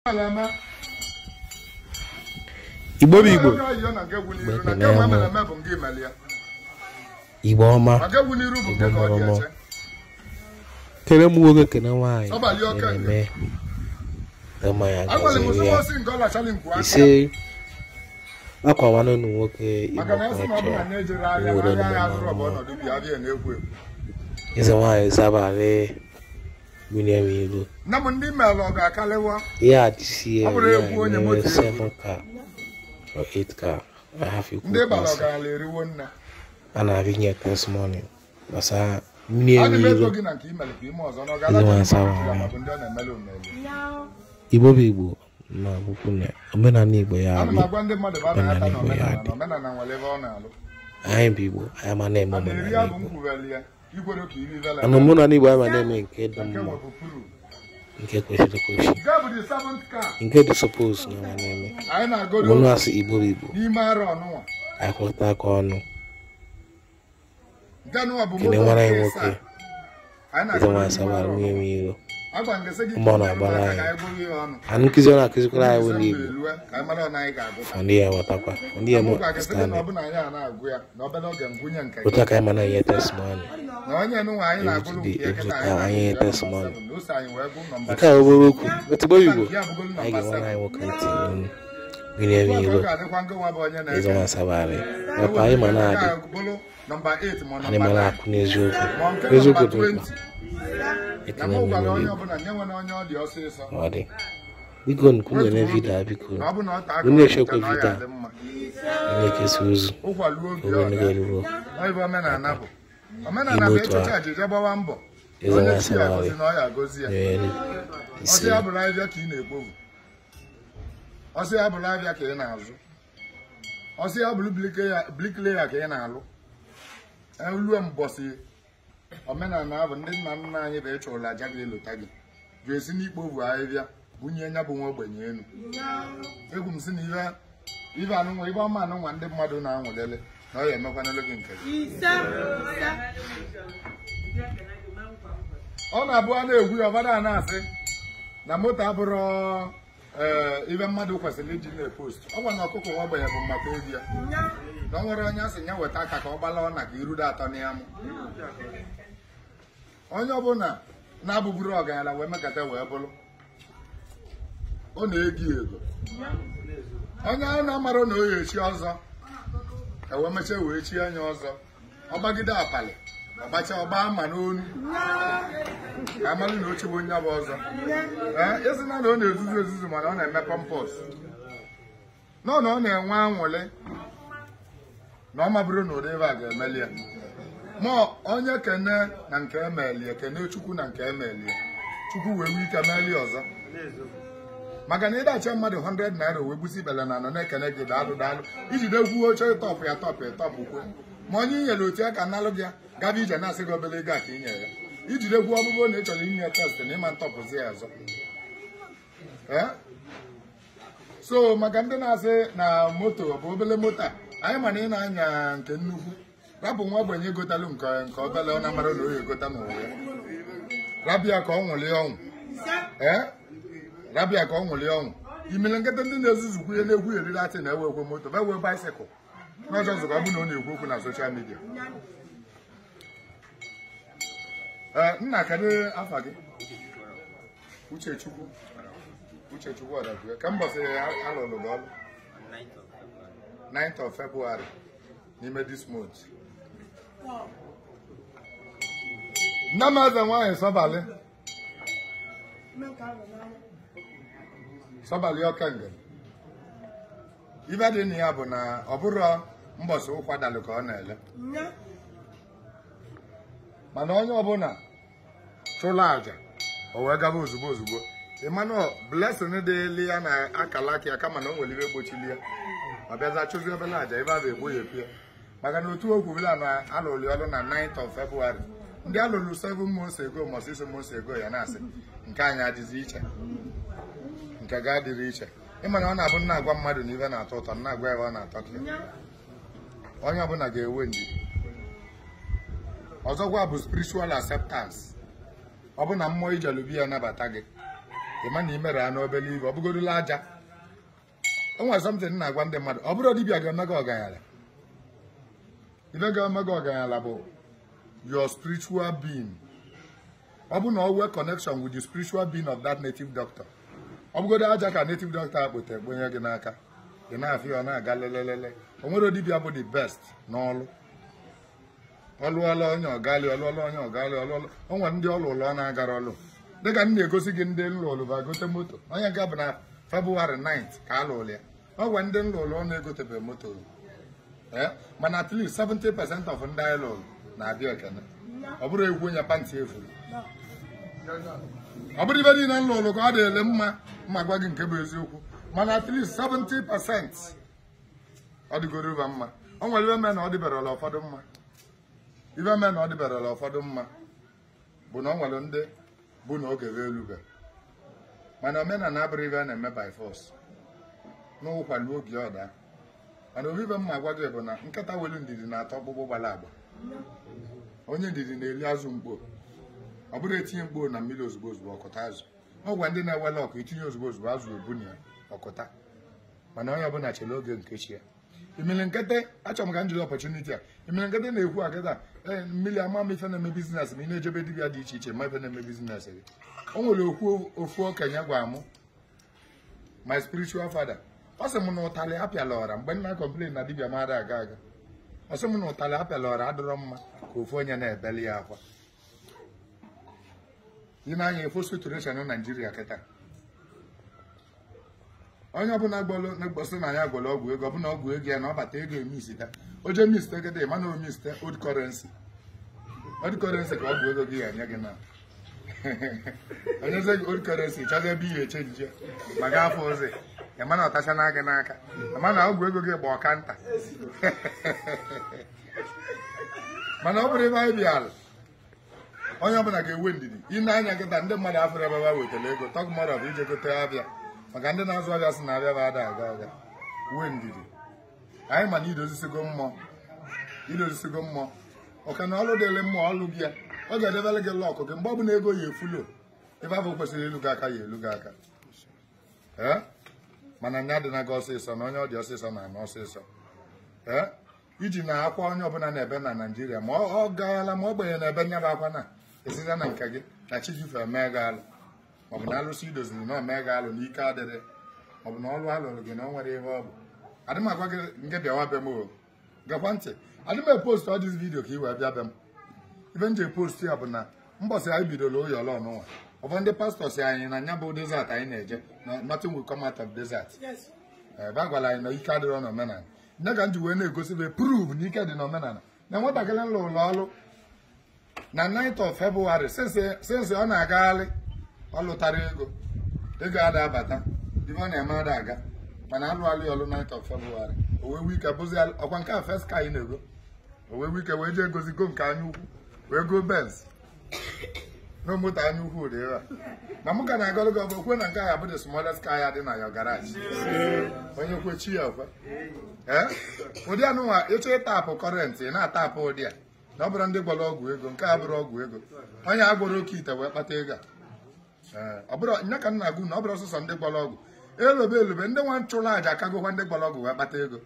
igbo bụ igbo igbo ọma igbo mọrọmọ kere m nwoke kere nwaanyị na-eme ama ya gọziri ya ise akwamanụ ụnụ nwoke igbo kọcha nwere ụmụ nwaanyị ịze nwaanyị zabarị million euro. Na mo ndị mere ọ ga-akalewa. Ihe a ya nwere 7 car 8 car. a Ndị bara ọgaranya eriwo this morning. million Ndị Igbo bụ Igbo na akwụkwọ na omenala Igbo ya adị. Omenala Igbo ya adị. Anyị bụ Igbo, anyị Igbo. mana mụ na na-eme nke dị mma nke kwesịrị ekwesị nke dị suppose na ama na-eme mụnụ asị Igbo bụ Igbo akwụta aka ọnụ kene nwara ya nwoke ịtọwa asaba arụmịrị iro nkụzi ọ na-akụzikwara anyị bụ n'Igbo ndị ya ghọtakwa ndị ya stand otu aka anyị mana ihe testimony anyị ihe testimony nke a bụrụ okwu otigbo Igbo anyị ga-enwe anyị nwoke ntị n'onu ya iro anyị eziokwu dị mkpa ekele m ọ dị biko nkwunyere vidiyo a biko onye echekwa vidiyo na-ekesa ozu ogenegeruo ime otu ahụ ịzara asa na nyere isi ọsị ya bụrụ alụ ruo mbọsị omenala ahụ ndị nna nna anyị bụ ụlọ aja gị elota gị jụ esi n'ikpo bụ ahịhịa bunye nya bụ nwa ogbenye elu egwu m si na ihe ibe anụnwa ibe ọma anụnwa ndị mmadụ na-anwụlele na ọ ya emekwanele gị nke ọ na-abụ a na-egwu ya ọbada na-asị na moto abụrụ ibe mmadụ kwesịrị iji na-epost ọ gwa na ọkụkọ nwa ogbenye bụ maka obi ya na ọ nwere onye asị ya weta aka ka ọ gbala ọ na ka irudo atọ na ya mụ onye ọbụla na abụbụrụ ọgaranya wee mekata wee bụrụ ọ na-egi ego onye a na-amara na oyi echi ọzọ ewee mechie wee chie anya ọzọ ọgbagide apali ọgbacha ọgba ama n'onu ka amalụ na ochegbu onye bụ ọzọ ee na ọ na-ezuzu ezuzu mana ọ na-eme pọmpọs nọ na ọ na-enwe anwụlị na ọ mabụrụ na ụdị ebe a ga-emeli ya ma onye kene na nke emelie kene chukwu na nke emelie chukwu wee nwee ike melie ọzọ maka na ịdacha mmadụ 100 naira wee gbusi ibele na anọ na-ekene gị daalụ daalụ ijide egwu oche ịtọpụ ya tọpụ ịtọpụ kwuo ma onye i nyere otu ya ka nalụ gị gaba ije na-asị gị obere ego a ka i nyere ya ijide egwu ọbụbụ na ị chọrọ inye testị na ịma ntọpụzi ya ọzọ so maka ndị na-asị na moto ọ bụ obele moto a anyị ma na ị na-anya nke nnukwu rabụ nwa ogbenye egotalụ nke nke ọbala ọ na-amara na oyi egota n'ụwa ya rabịa ka ọ nwụlie ọnwụ ee eh? rabịa ka ọ nwụlie ọnwụ imele nkịta ndị na-ezuzukwu ihe na-egwu eriri atị na-ewe moto ma ewe baisikụl n'ọzọ ọzọ ka ọ bụ na ọ na-ekwu okwu na soshal midia ee eh, nna kedụ afa gị uchechukwu uchechukwu ọdabue ka mbọsị alụrụ gị ọrụ 9th of February n'ime this month nne m eze nwaanyị sọbalị sọbalị ọkenga ibe dị na ya bụ na ọ bụrụ mbọsị ụkwadalụ ka ọ na-ele mana onye ọbụla chụla aja o wee gaba ozugbo ozugbo Emmanuel blessing dịli ya na akala aka ya kama na o nwere gbochilie gbochili ya ọ bịaza chụzi obele aja ebe a bụ egboghepụ ya maka na otu okwu bụla na alụrụ ọrụ na 9th of February ndị a lụrụ 7 months ago ma 6 months ago ya na-asị nke anyị adịzi iche nke ga-adịrị iche ịma na ọ na-abụ nna agwa mmadụ na ihe na-atọ ụtọ nna agwa ya ọ na-atọ ka onye ọbụla ga-enwe ndidi ọzọkwa bụ spiritual acceptance ọ bụ na mmụọ ijelubi ya nabata gị ịma na imere ya n'obere ibe ọ bụgorola aja o nwere something na-agwa ndị mmadụ ọ bụrụ dibịa ga-eme gị ọganyala ibe ga-eme gị ọganyala bụ your spiritual being ọ bụ na ọ nwee connection with the spiritual being of that native doctor ọ bụgodo aja ka native doctor akpụta ekponye gị n'aka ị na-afị ọ na-aga lelelele o nwere dibịa bụ the best n'ọlụ ọlụọla onye ọgali ọlụọla onye ọgali ọlụọla o nwere ndị ọlụlụ ọ na-agara ọlụ dịka m egosi gị ndị gote moto onye nke bụ na febụwarị 9 ka a lụrụ ya ọ ndị na moto eh, mana of ndị anyị na Adịọkene ọ bụrụ egwu onye pantị efuru ọ bụrụ ibe niile na lụrụ ka ọ dịle mma mma gwa gị nke bụ eziokwu mana at least 70 percent ọ dịgoro ụba mma ọ nwere ibe mee na ọ dịbarala ụfọdụ mma ibe mee na ọ dịbarala ụfọdụ mma bụ na ọ nwere ndị bụ na oge wee elube mana omenala abụrụ ibe a na-eme by force n'ụkwa oge ọda mana obibe mma gwa gị bụ na nkata welu ndidi na-atọ ọkpụkpụ gbara agba onye ndidi na-eli azụ mkpo ọ bụrụ etinye mkpo na mmiri ozugbo ozugbo ọkụta azụ ọ gwa ndị na-ewele ọkụ itinye ozugbo ozugbo azụ ebunye ya ọkụta mana onye ọbụla chere oge nke chi ya emere nkete achọrọ m ka m jiri ọpọchuniti a emere nkete na-ekwu akịta ee eh, mmiri ama m ife na-eme bizinesị ma ị na-ejebe dibịa dị iche iche ma ife na-eme bizinesị gị o nwere okwu ofu okenye gwara mụ my spiritual father ọ sị m na ụtalị apịala ọra mgbe nna kọmplen na dibịa mara aga aga asị m na ụtalị apịala ọrụ adịrọ mma ka ofu onye na-ebeli ya akwa ime anya efo situation na naijiria kịta onye ọbụla na-egbosi na ya gwọrọ ọgwụ ego ọbụla ọgwụ ego ya na ọbata ego emisita oje miste kịta ịma na omiste old currency old currency ka ọgwụ ego gị ya nye gị na onye old currency chọzie ebe ihe echenji maka afọ ozi ịma na ọtacha na gị n'aka ma na ọgwụ ego gị gba ọka nta mana ọ bụrụ ebe anyị bịara onye ọbụla ga ewe ndidi ị na-anya nkịta ndị mmadụ afọrọ ebe ha wetara ego tọk mmadụ bụ ije gote abịa maka ndị na-azụ ọbịa sị na abịa bụ ada aga aga wee ndidi anyị mana idozisigo mmụọ idozisigo mmụọ ọka na ọlụ dịrị mmụọ ọlụ gị ya ọ ga-edebere gị lọkụ gị mgbe ọ bụla ego ya efulo ebe afọ kwesịrị elu gị aka ya elu gị aka mana nya dị na gị ọsịsọ na onye ọ dị ọsịsọ na ana ọsịsọ ee iji na akwa onye ọbụla na ebe na naijiria ma ọ gaala ma ọ gbenye na ebe nya bụ akwa na esite na nke gị na chijife mee gị alụ maọbụ na alụsị idoziri na omee gị alụ n'ike adịrị maọbụ na ọlụ alụrụ gị na ọ nwere ihe ọ bụ adị m agwa gị nke bịawa be m o gakwa ntị adị m epost ọ vidio ka ị wee bịa be m ibe m ji post ya bụ na mbọsị anyị bidoro oyi ọlọ n'ụwa ụfọdụ ndị pastọ si anyị na nya bụ desert anyị na-eje nothing will come out of desert ebe eh, a gwara anyị na ike adịrọ n'omenala ya ka m ji wee na-egosi be prove na ike dị n'omenala na nwatakịrị nlụ ụlọ ọrụ na 9th of February sensị ọ na-agagharị ọ lụtara ego ego ada abata ife ọ na-eme ada aga mana alụgharị ọlụ 9th of February owee wike bụzi ọkwa nke a first ka anyị na-ego owee wike wee jee gozigo nke anya wee go Benz na moto anya ukwu ụdị ịra na mụ ka na-agọlụ gị ọbụ okwe na nke ahụ abụ the smallest car ya dị na your onye kwe chi ya okwe ụdị anụnwa ịchọ ịtapụ kọrentị ị na-atapụ ụdị a na ọ bụrụ ndị gwara ọgwụ ego nke a bụrụ ọgwụ ego onye a gwara oke ite wee kpata ego a nya ka m na-agụ na ọ bụrụ ọsụsọ ndị gwara ọgwụ elube elube ndị nwa nchụrụ aja akagokwa ndị gwara ọgwụ wee kpata ego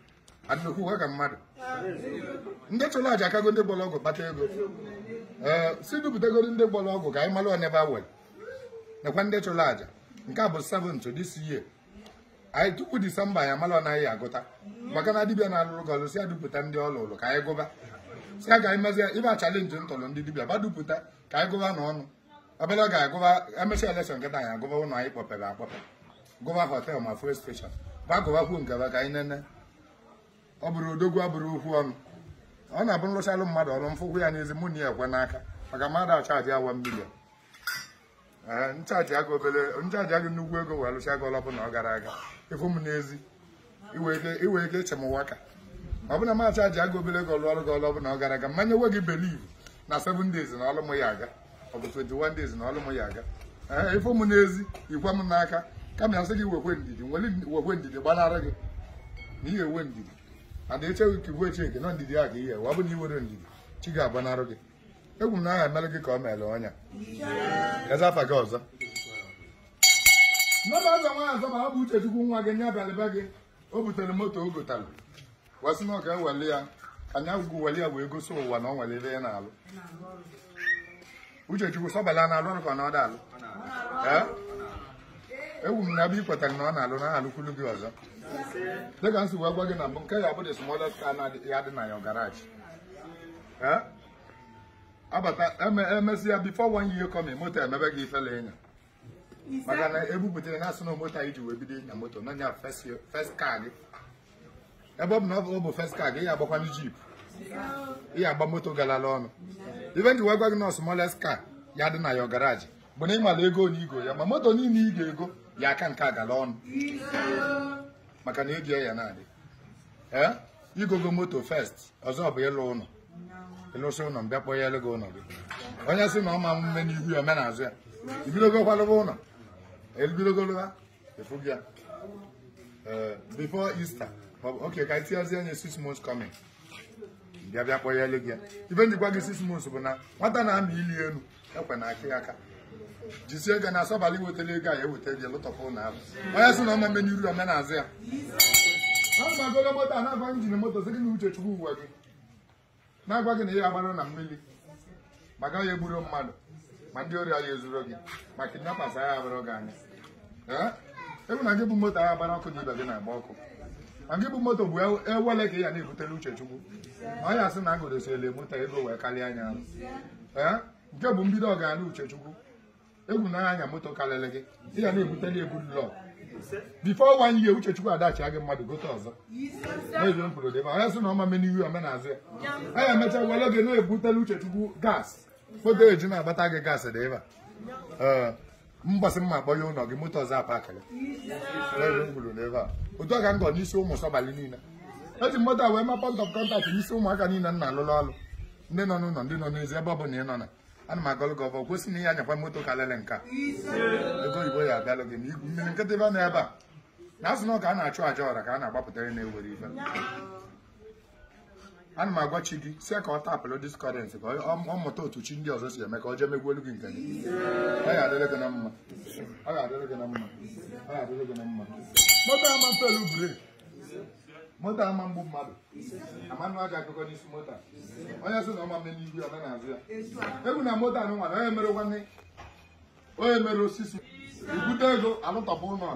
adịnokwu ka mmadụ ndị chụrụ aja akago ndị gwara ọgwụ kpata ego Eh, si dupụtagoro ndị gbara ọgwụ ka anyị mara onebe a were nakwa ndị chụrụ àjà nke a bụ seventh this year anyị tupu disemba anyị amara ọnaghị agụta maka na dibịa na-alụrụ gị ọlụ si ya dupụta ndị ọ lụrụ ka anyị gụba si ya ka anyị mezie ibe a chalenji ntụrụ ndị dibịa ba dupụta ka anyị gụba n'ọnụ obere ọ ga-agụba emesịa elekshọn nkịta anyị agụba ụlọ anyị kpọpere akpọpe gụba họtel ma fuel steshọn ba gụbakwuo nkeba ka anyị nene ọ bụrụ odogwu abụrụ okwu ọnụ ọ na-abụ nlụchalụ mmadụ ọrụ mfụgwụ ya n'ezi mụ na ya ekwe n'aka maka mmadụ achaji awa milion ee nchaji aga obele nchaji aga nnukwu ego wee lụcha gị ọlọbụ na ọ gara aga ịfụ m n'ezi iwe ike iche m waka ọ bụ na m achaji aga obere ego lụọ ọrụ gị ọlọbụ na ọ gara aga mmanya nwe gị beliv na 7 days na ọlụ m ya aga ọ bụ 21 days na ọlụ m ya aga ee ịfụ m n'ezi ikwe m n'aka kama ya sị gị wekwe ndidi wekwe ndidi gbanara gị na ihe ewe ndidi ada echeghị ka igwe nke nọ ndidi a ka ihe wa bụ na iwere ndidi chi ga-agbanara gị egwu m na aha emelụ gị ka ọ meele ọnya afa gị ọzọ nne ọzọ nwaanyị zọba ọ bụ uchechukwu nwa gị nye abalịba gị o butere moto o gotalụ wasị na ọ ga-eweli ya anya ugwu weli ya wee gosi ụwa na ọ nwelele ya n'alụ uchechukwu sọbala na alụ ọrụ ka ọ da alụ egwu m na abụ ikwetara na ọ na-alụ na ha alụkwulu gị ọzọ dịka nsị wee gị na nke ya bụ the smallest car ya dị na your garage abata emesi ya before one year coming moto emebe gị ifele ịnya maka na ebubutere na asị moto anyị ji wee ịnya moto na nya first car gị ebe ọ bụ na ọ bụ first car gị jeep moto na smallest car ya dị na ya garage bụ na ịmala ego ya ma moto niile ị ga-ego ya aka nke agala ọnụ maka na ego ya na-adị ee igogo moto fest ọzọ bụ ịlụ ụlọ ịlụsị ụlọ mbịa kpọọ ya elego ụlọ gị onye sị na ọ ma mme n'ihu ya omenazụ ya ibidogo kwalụba ụlọ ebidogoloa efugi ya ee before Easter Ok, ka tinyezie onye six months coming bịa bịa kpọọ ya elego ya ibe njikwa gị six months bụ na nwata na-amị ili elu ekwe na akị aka jisie ego na asọbalị wetara ego a ya e eweta gị lụtọkwa ụlọ ahụ onye sị na ọma mmenye uru omena azụ ya a na moto a na agwa njin moto sị gị na uche chukwu uwe gị na-agwa gị na ya agbara na mmiri ma gaghị egburu mmadụ ma ndị ọrịa ya ezuru gị ma kidnappers agha agbara gị anya ewu e na gị bụ moto agha agbara ọkụ na ibe gị na-agba ọkụ ma gị bụ moto bụ ewele e ka ị ya na-ebutere chukwu. ma ọ ya sị na agụrụsiele moto ego wee karịa anya nke bụ mbido ọganihu uchechukwu egwu na anya moto karịrị gị ị ga na-ebute na egwu lọ bifo one year uchechukwu adachi gị mmadụ gote ọzọ n'ezo m kwuru debe onye sị na ọma me n'ihu omenazụ ya anya emecha were gị na-ebutela uchechukwu gas foto eju na-agbata gị gas dị ebe a mgbasị mma akpọ ya ụlọ gị moto ọzọ apakịrị n'ezo m kwuru n'ebe a otu ọka ga ngọ n'isi ụmụ sọbalị niile eji moto a wee ma pọnt ọf kọntaktị n'isi ụmụaka niile nna alụlụ ọlụ ndị nọ n'ụlọ ndị nọ n'ezi ebe ọ bụla ị nọ na ana m agọlụ gị ọbọ kwesị na ihe anyakwa moto ka lele nka ego oyibo ya abịalụ gị ma igwu mmiri nkịtị ebe a na ebe a na asụ na a na-achụ aja ọra ka a na-agbapụtara na-ewere ife ana m agwa chi gị sie ka ọ tapụlụ diskọrensị ka ọ mụta otu chi ndị ọzọ si eme ka ọ jee megwuelu gị nke gị ọ ga-adịrị gị na mma ọ ga-adịrị gị na mma ọ ga-adịrị gị na mma moto ama pelu brik moto ama mgbu mmadụ amanụ aja akụkọ n'isi moto a onye sị na ọma mmemme n'ihu ọ na-azụ ya egwu na moto anụ nwara onye mere nwanne onye mere osisi ibute ego alụtọpụ ụlọ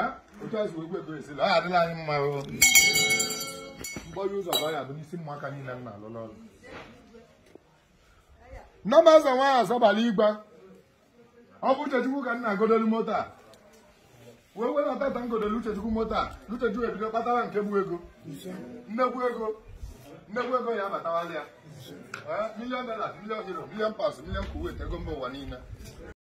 eh? otu azụ egwu ego esila ọ adịla anyị mma mgbọrị ụzọ ọ adụ bụ n'isi ụmụaka niile m na-alụlọ ọrụ nneọma ụzọ nwaanyị azọbala igba ọ bụ uchechukwu ka m na-agodolu moto a wee wenata tangode Uchechukwu moto a Uchechukwu ebido kpatara nke bụ ego nnekwu ego nnekwu ego ya abatawala ya milion dollars milion euro milion pounds milion kuwait ego mba ụwa niile